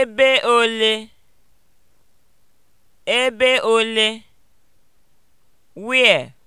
Ebe ole? Ebe ole? Where?